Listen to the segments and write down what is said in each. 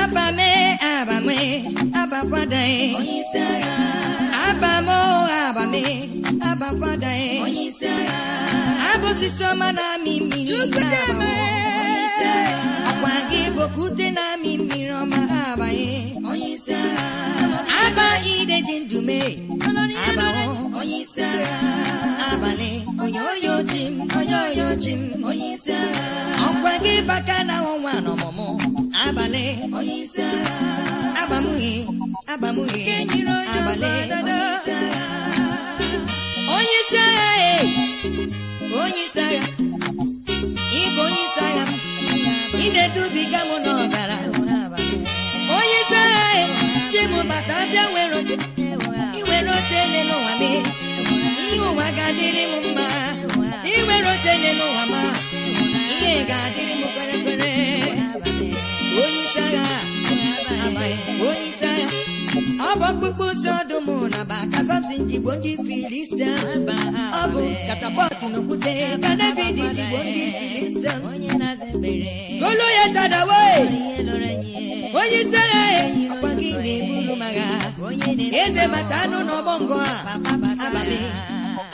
abame abame abakwadae Abamo abame abakwadae onyeisiagha na-amị mmiri akwa gị bokute na-amị mmiri ọma abanye onyeisiagha aba ideji ndume abawo agha. oyoyo jim oyoyo jim onye isi agha ọkwa gị baka na ọnwa n'ọmụmụ abalị onye isi agha agbamuhi agbamuhi abalị onye isi agha onye isi agha ịbụ onye isi agha m, ị na-edubiga m n'ọzara onye isi agha chibụ bata abịa nwere oche nwere oche n'ụwa m ihe ụwa ga-adịrị m mma iwere oche n'elu ụwa ma ihe ga-adịrị m kwere kwere onye isi agha amaghị onye isi agha ọ bụ ọkpụkpụ si ọdụm na ba ka samson ndị filistia ọ bụ katapọtụ na okwute ka david jigbo ndị filistia goloyet tadawe. onye isi agha ọkwa gị na-eburu magha eze mata anụ na ọgbọ ngụ a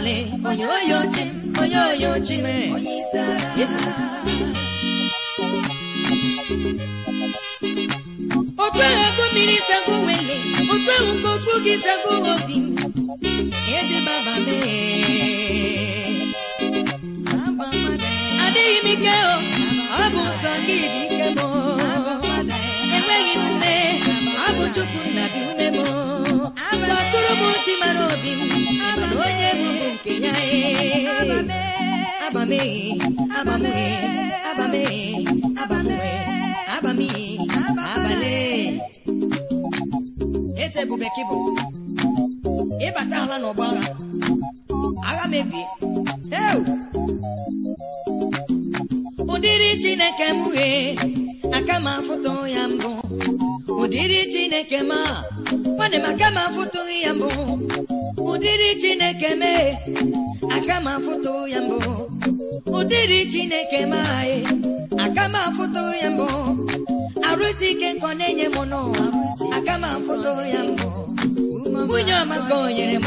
ale oyoyo chim oyoyo mmiri sago nwele okpeghị nke gị sago obi adịghị m ike ọ bụ nsọ gị bi Abame, Eze bụ bekee bụ ịbata ala n'ọgba agha agha mebie ụdịrị Chineke aka ma afụtụ ya mbụ ụdịrị Chineke ya mbụ e, ụdịrị chineke m anyị aka m afụto ya mbụ arụzi ike nkọ na-enye m n'ụwa aka m afụto ya mbụ nwunye ọma ka o nyere m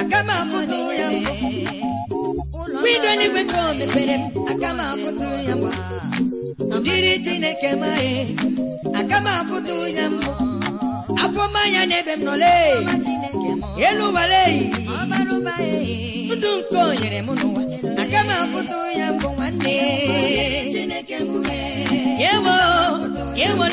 aka m afụto ya mbụ windo n'igwe ka o mepere m aka m afụto ya mbụ ụdịrị chineke m anyị aka m afụto ya mbụ afọma ya n'ebe m nọle elu ụwale ndụ nke o nyere m n'ụwa na-apụta ya bụ nwanne e, ya ewole ya bụ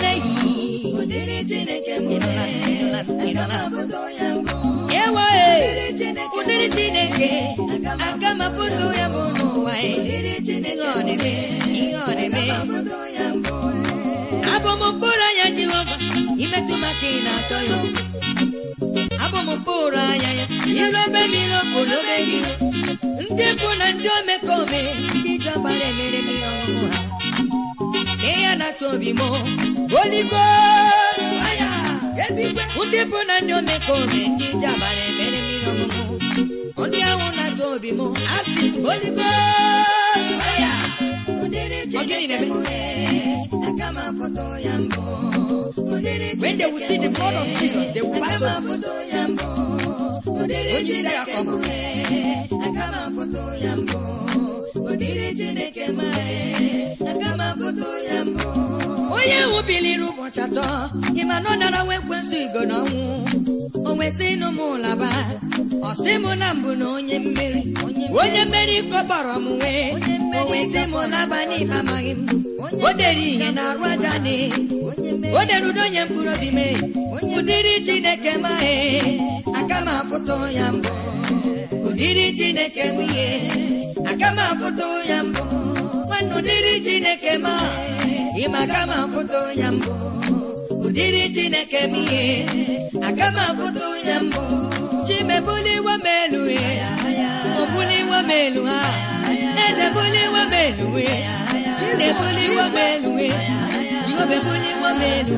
abụ m mkpụrụ anya jehova imetụ maka na-achọ ya abụ m mkpụrụ anya ya ilobe gị ndị bụ na ndị omekome ndị jọgbara emere mmiri ọṅụṅụ ha nke ya na-atụ obi m oligo ndị bụ na ndị omekome ndị jọgbara emere mmiri ọṅụṅụ ndị ahụ na-atụ obi m asị oligo When they will see the blood of e, Jesus, they will pass over. udiri chineke mgbe m ya mbụ chineke m ya mbụ onye wubiliri ụbọchị atọ ịma na ọ dara nwa ekwensụ igo n'ọnwụ o nwesị ịnụ m ụlaba ọ sị na mbụ na onye mmeri onye mmeri kọbọrọ m wee o nwesị m ụlaba amaghị m o dere ihe na arụ aja o dere udo onye mkpụrụ obi mee udiri chineke mae aka m ya mbụ ụdịrị chineke m ihe aka m ya mbụ nwanne ụdịrị chineke ma ịma aka m ya mbụ ụdịrị chineke m ihe aka m afụta ya mbụ chimebuliwe m elu obuliwe m elu ha ezebuliwe m elu chinebuliwe m elu jiobebuliwe m elu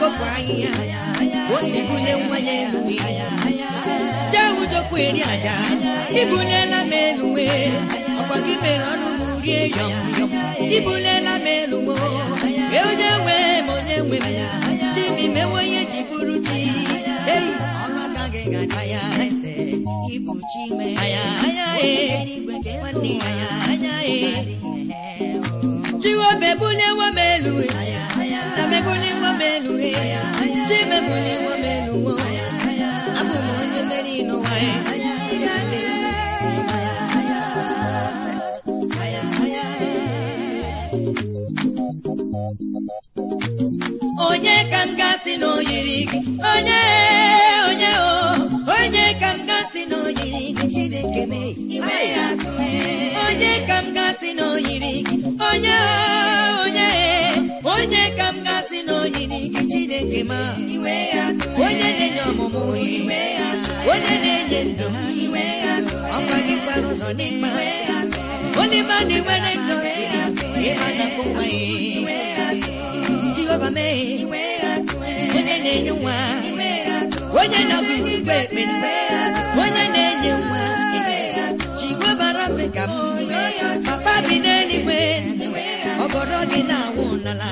kpọpụ ahịhịa ose bule nwanye eluwe jee ụjọkwa eri aja ibulela m eluwe ọkwa gị mere ọnụ m rie ya. Ibunye ibulela m eluwe onye nwe m onye nwe m chi m onye ji bụrụ chi eyi ọmaka gị ga-aga ya eze ịbụ chi bulewa m na melughe chibebụli nwa m abụ m onye mere n'ụwa ya Nani wele onye na nwa onye na bara me ka m papa bi n'eluigwe ọgọdọ gị na-awụ n'ala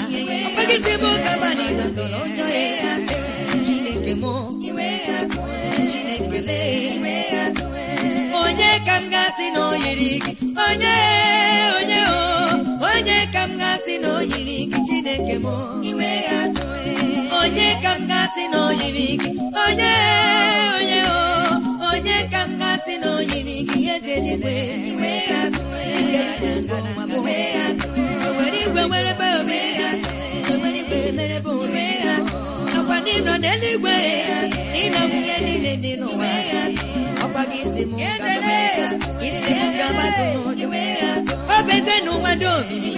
onye ka m gasị gị onye chineke m e. onye ka m gasị na oyiri gị onye onye onye ka m gasị na oyiri gị ejeligwe owere e. e. igwe merebe ome akwa ndị nọ n'eluigwe ịnọ ihe niile dị n'ụwa ọkwa gị isi m isi m gabatụ n'ụjụ obezenụ nwa dị omimi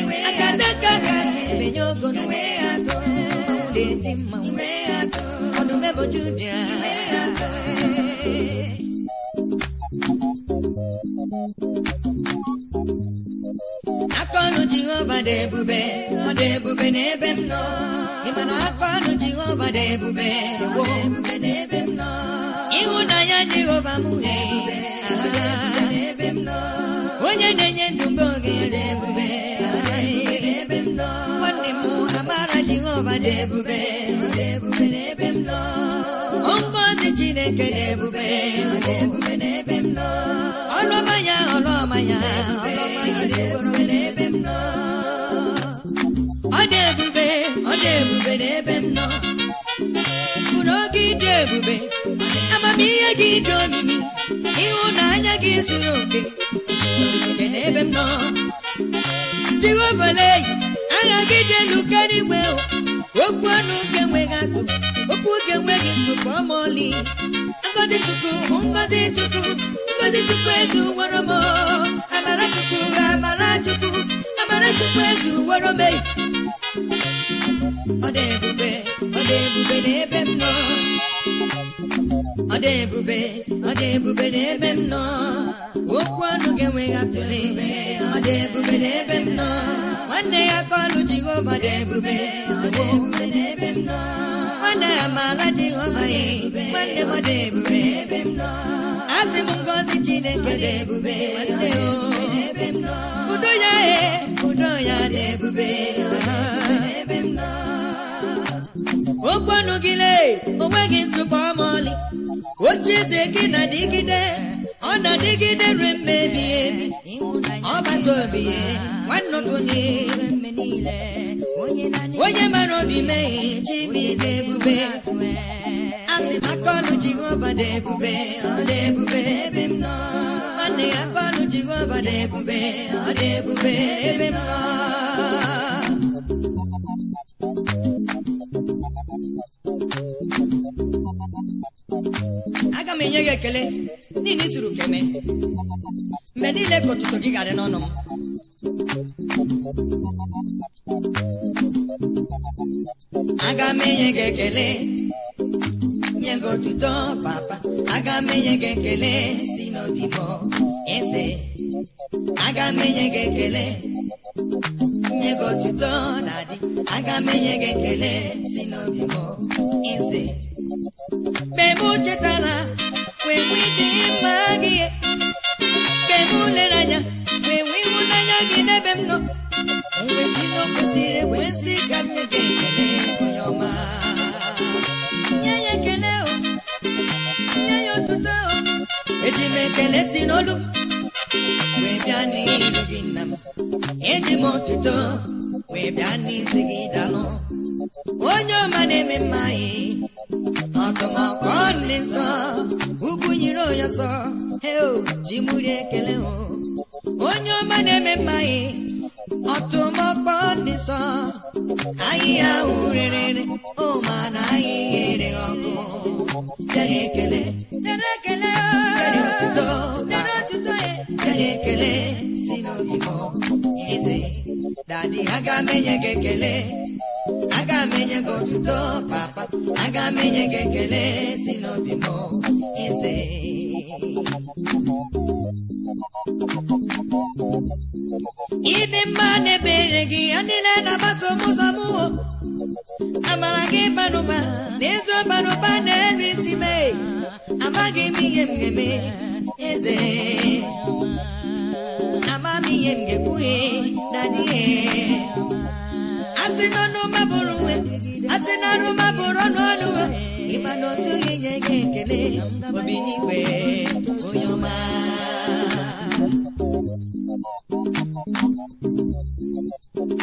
akanaka ga-emenye ogo dị mmanwụ ọdụmebojudia akọnụ Jehova dị ebube ọ dị ebube n'ebe m nọ ị akọnụ Jehova dị ebube ịhụnanya Jehova m onye na-enye ndụ mgbe oge dị ebube dị ebube n'ebe m nọ Chineke dị ebube n'ebe m ọ dị ebube ọ dị ebube n'ebe m nọ bụrụ oge ịdị ebube amamihe gị dị omimi ịhụnanya gị zuru oke oke n'ebe m nọ jiwebeleyi agha gị dị elu karịa okwu ọnụ ga enweghị atụ okwu oge enweghị ntụpọ ọmọli ngozi chukwu ngozi chukwu ngozi chukwu eju nwere m amara chukwu amara chukwu amara chukwu eju nwere m e. ọ ebube ebube n'ebe m nọ ọ ebube ọ dị ebube n'ebe m nọ okwu ọnụ ga-enweghị atụle ọ dị ebube n'ebe m nọ nwanne ya ka ọnụ Jehova dị ebube nwanne ya maara Jehova ya nwanne m dị ebube asị m ngozi Chineke dị ebube udo ya ee udo ya dị ebube okwu ọnụ gị lee onweghị ntụpọ ọmọlị oche eze gị na dịgide ọ na-adịgide re mmebi ọgbata obi nwanne onye onye mara obi meghe chibi dị ebube asị aka ọnụ Jehova dị ebube ọ dị ebube ebe m nọ nwanne ya aka ọnụ Jehova dị ebube ọ dị ebube ebe m nọ aga m enye gị ekele Gịnị zuru ka mgbe niile ka gị garị n'ọnụ m aga m enye gị ekele nye gị otuto papa aga m enye gị ekele si n'obi eze aga m enye gị ekele nye gị otuto na dị aga m enye gị ekele si n'obi bọ onye ọma na-eme mma ọkọmọkọ nne nsọ ugwu nyiri onye ọsọ heo oh, ji mụri ekele hụ oh. onye ọma na-eme mma ọtụmọkpọ nne nsọ ahịhịa ahụ rere o na ahịhịa ere oh, ọkụ dere ekele dere ekele dere otuto dere eh. ekele si n'obi m eze dadi aga m enye gị ekele aga m enye gị otuto papa aga m enye gị ekele si n'obi m eze ịdị mma na-ebere gị ya niile na-agbaso ụzọ m wo amara gị banụba na ezi na-eru isi mee amaghị m ihe m ga-eme eze ama m ihe m ga na dịghị asị na ọnụ bụrụ nwe asị na arụ mabụrụ ọnụ ọnụ ịma na otu gị nye gị ekele obi n'igwe onye ọma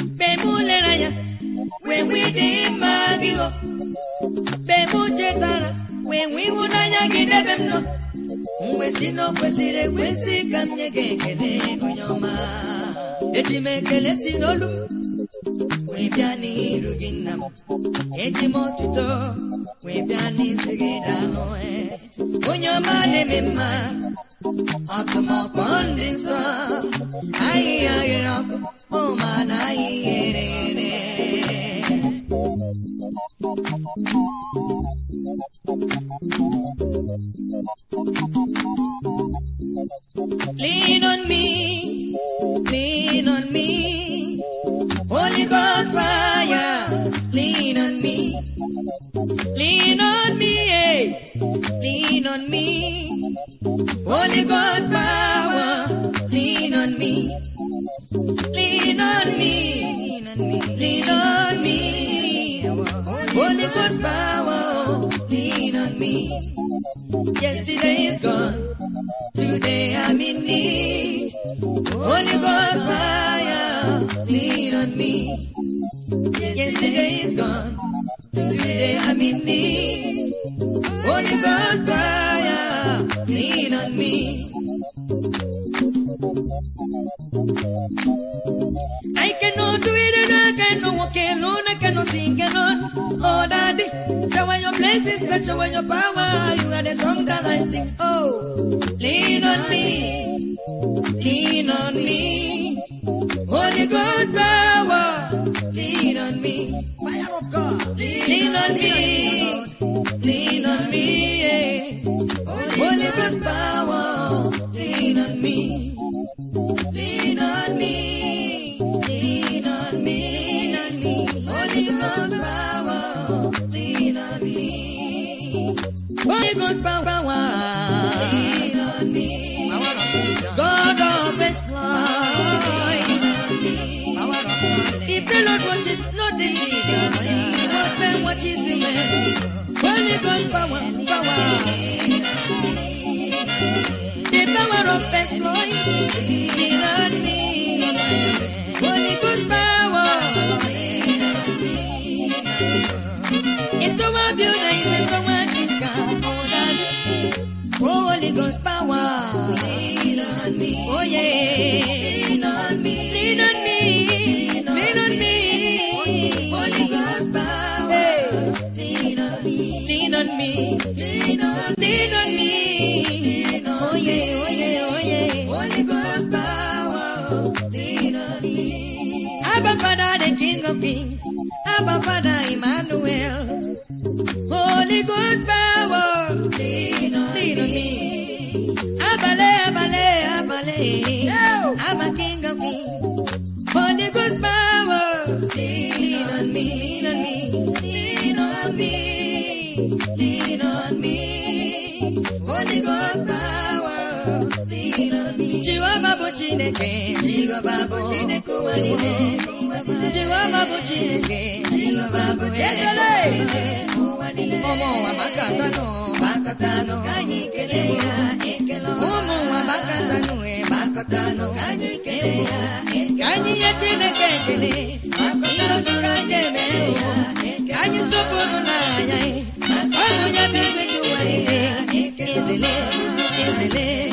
mgbe m lere wee nwee dị mma gị o mgbe chetara wee nwee ịhụnanya gị n'ebe m nọ mwezi na kwesịrị ekwesị ka m nye gị ekele eji m ekele si wee bịa n'iru gị nna m eji m otuto wee bịa n'isi gị daalụ onye ọma na-eme mma ọkụmọkpọ ndị nsọ ahịhịa ghere ọkụ ụma na ahịhịa ere ere Holy Ghost get you when your power. You are the song that I sing. Oh, lean on me, lean on me. Holy God power, lean on me. Fire of God, lean, lean on, me. chineke jehova bụ chineke ụwa bụ chineke jehova bụ ekele ụmụ ụwa maka ka anyị ya ekele anyị ya ka anyị nye chineke ekele ihe jụrụ anyị emere ya ka anyị sopụrụ n'anya e, ọ bụ ya bụ igwe ekele ekele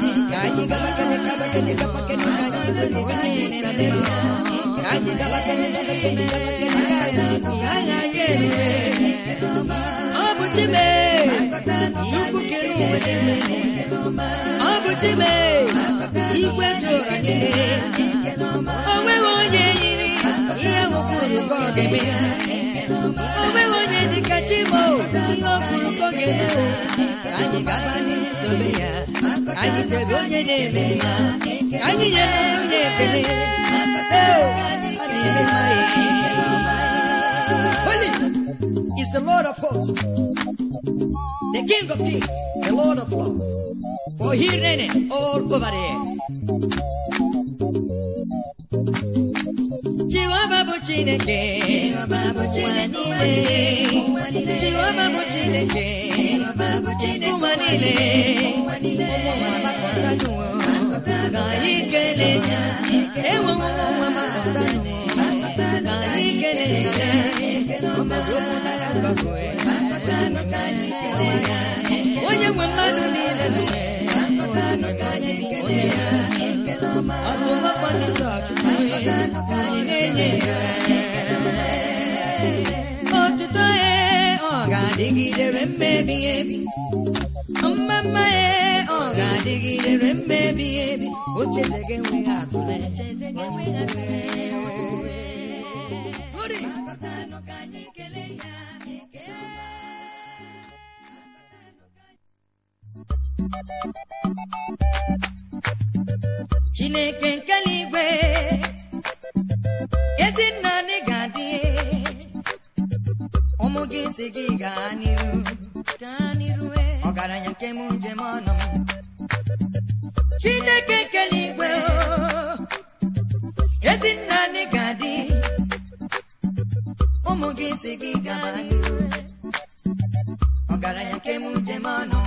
ọ bụ dime chukwu kere ụwa ọ bụ dime igwe jụrụ anyị o nweghị onye yiri ihe wụkwuru ka ọ ga-eme o nweghị onye dịka chimo ihe ọ kwuru ka ọ ga-eme anyị ya anyị jere onye na-eme anyị nyere onye ekele Holy is the Lord of hosts, the King of kings, the Lord of lords, for he reigneth all over the earth. Chineke Jehova bụ Chineke Jehova ụwa niile onye nwe mmadụ niile onye ya ọtụmakwa ndị ọchụkwu na ya dịrị mmebi ebi mma mma ya ọ ga-adịgidere mmebi ebi o cheta gị chineke nke eluigwe ezi nna gị si gị gaa n'iru e. ọgaranya nke m njem ọnụ m Chineke kele igwe ezi nna anyị ga-adị ụmụ gị si gị gaa n'iru e. ọgaranya nke m njem ọnụ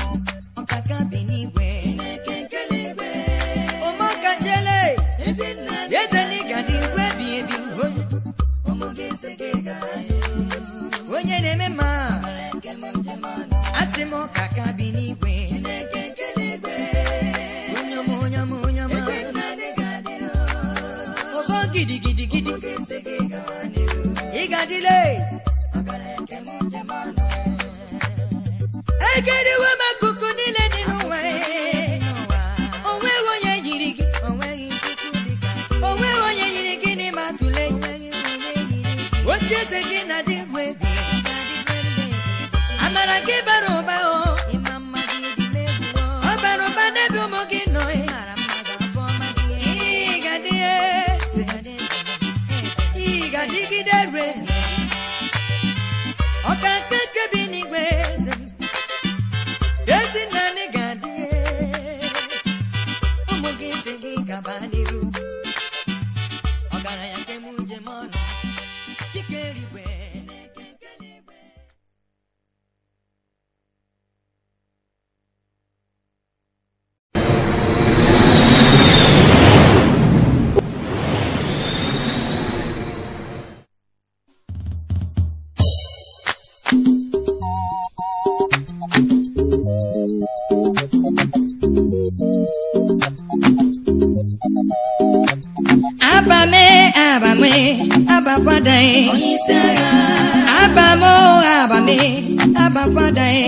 ụkwada e.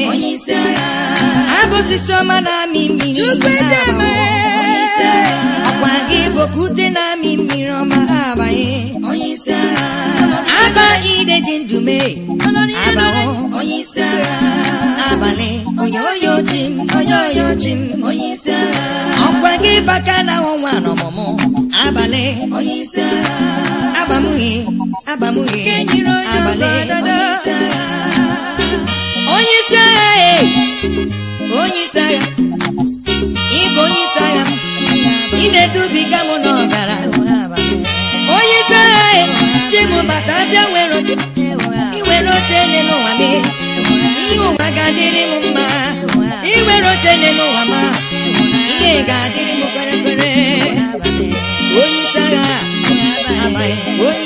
ya abụsị soma na-amị mmiri ọkwa gị bụ na-amị mmiri ọma abanye aba ide ji ndume abawo abalị onye oyo m onye oyo ji m ọkwa gị baka na ọnwa n'ọmụmụ abalị agbamughị agbamughị abalị onye isi agha onye isi agha ị na oche ụwa m ihe ga onye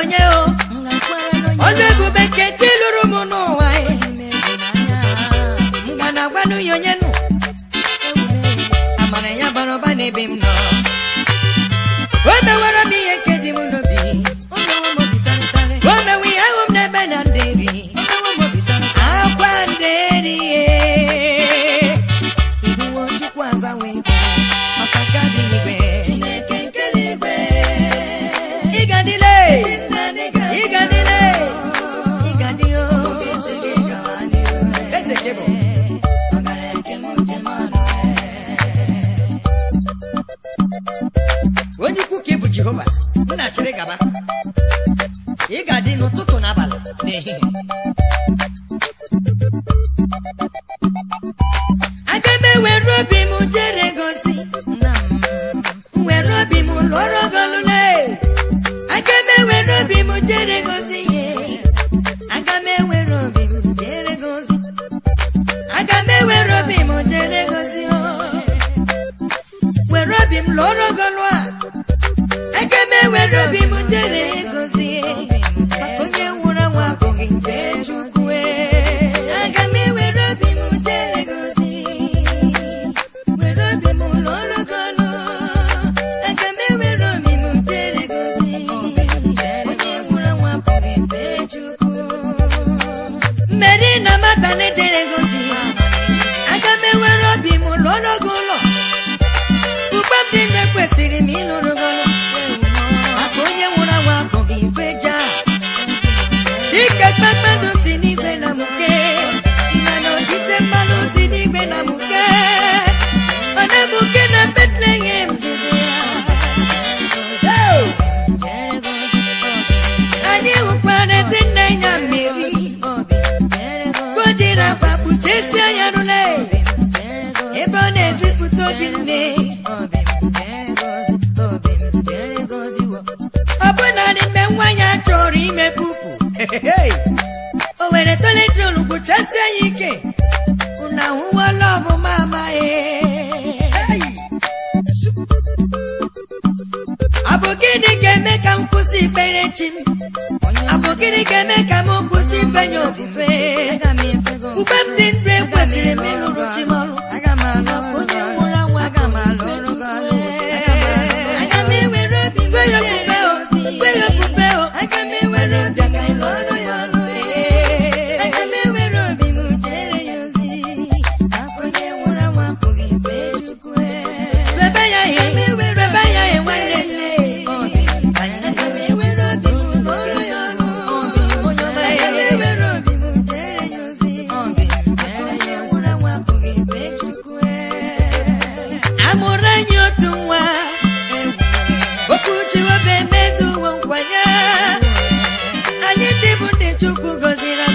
onye ọnụ ebube nke chi lụrụ m n'ụwa ikekpe mgbe ndị anyị otu nwa okwuchi obe emezu uwe nkwanye anyị ndị bụ ndị Chukwu gọziri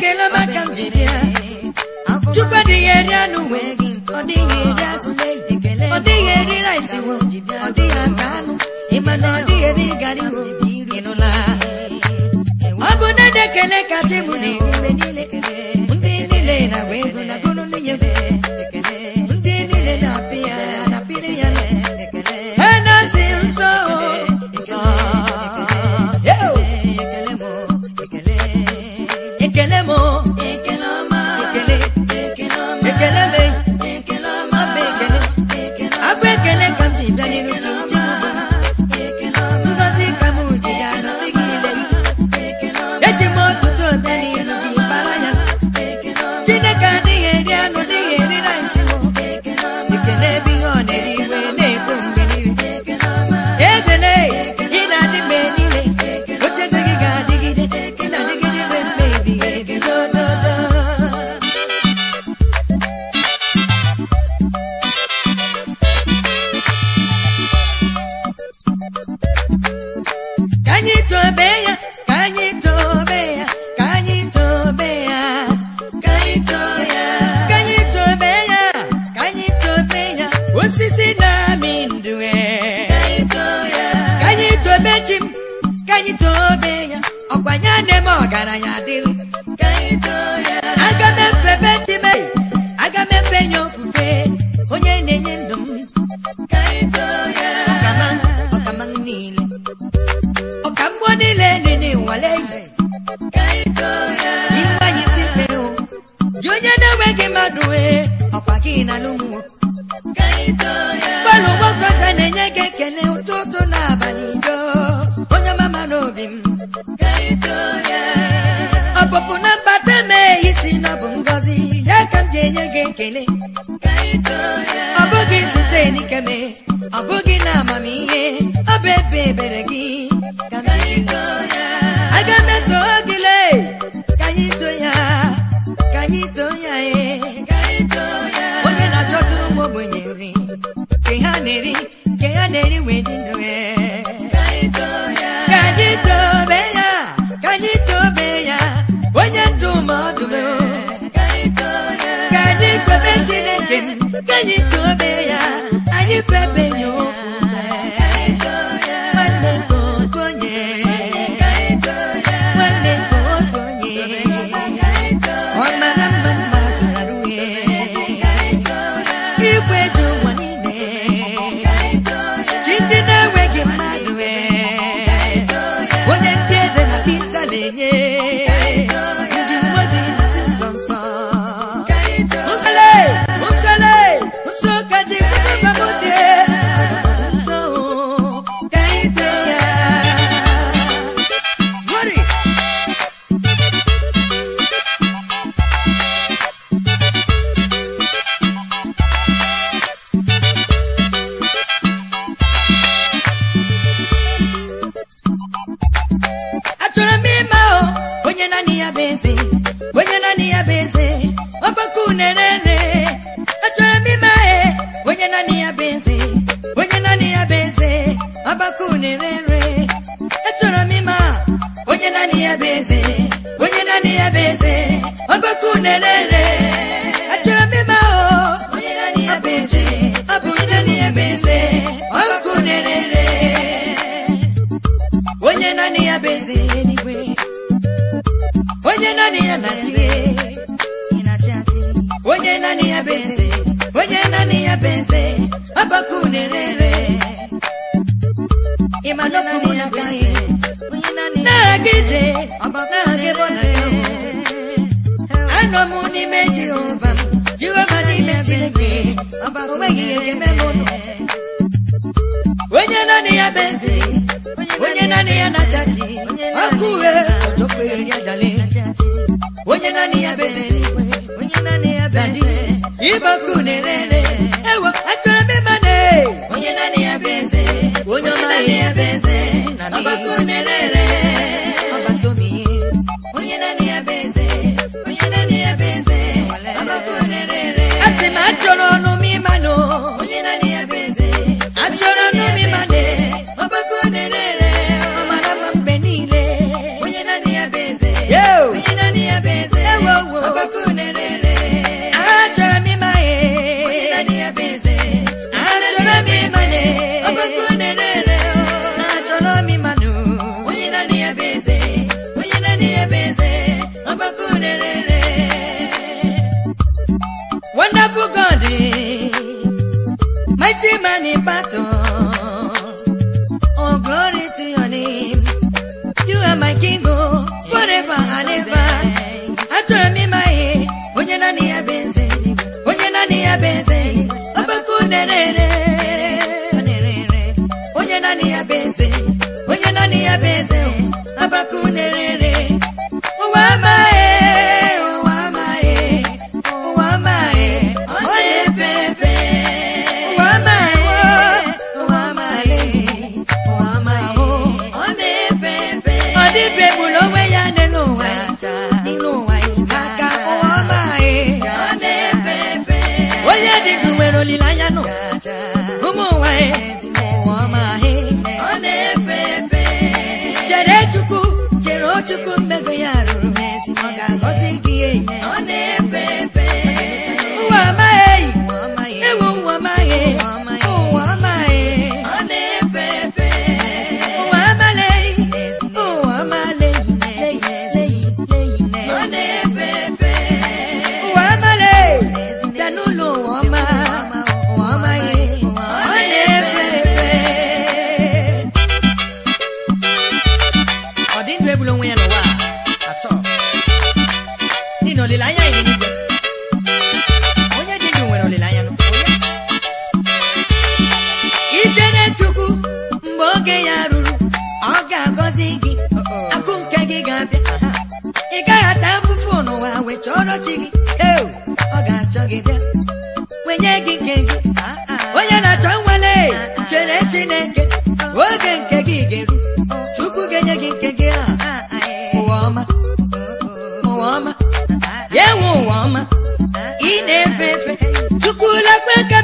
ekele maka chukwu adịghị eri anụ nwe ọ dịghị ọ ọ dịghị na ọ dịghị eri gari ọ bụ na m chi m ya ọkwanye nne ọgaranya dịrị aga m efebe chi m aga nye onye na-enye ndụ m ọkama ọkama niile niile ji onye na-enweghị mmadụ ọkwa gị na lụmụ ọpụpụ na mbata mee isi na ọ bụ ngọzi ya ka m ji enye gị ekele ọ bụghị site n'ikeme ọ bụghị na amamihe ọ bụ ebe ebere gị ka anyị tobe ya anyị kpebe n'ime Jehova Jehova n'ime Chineke onye naanị ya bụ eze onye naanị ya na-acha ji ọkụ onye ọjọkwere ya jale onye naanị ya bụ eze na-ere ere chọrọ chi gị ọ ga-achọ gị bịa wenye gị nke gị onye na-achọ nwale chere Chineke oge nke gị ga-eru Chukwu ga-enye gị nke gị ụwa ọma ụwa ọma ya enwe ụwa ọma ị na-efe efe Chukwu lekwe ka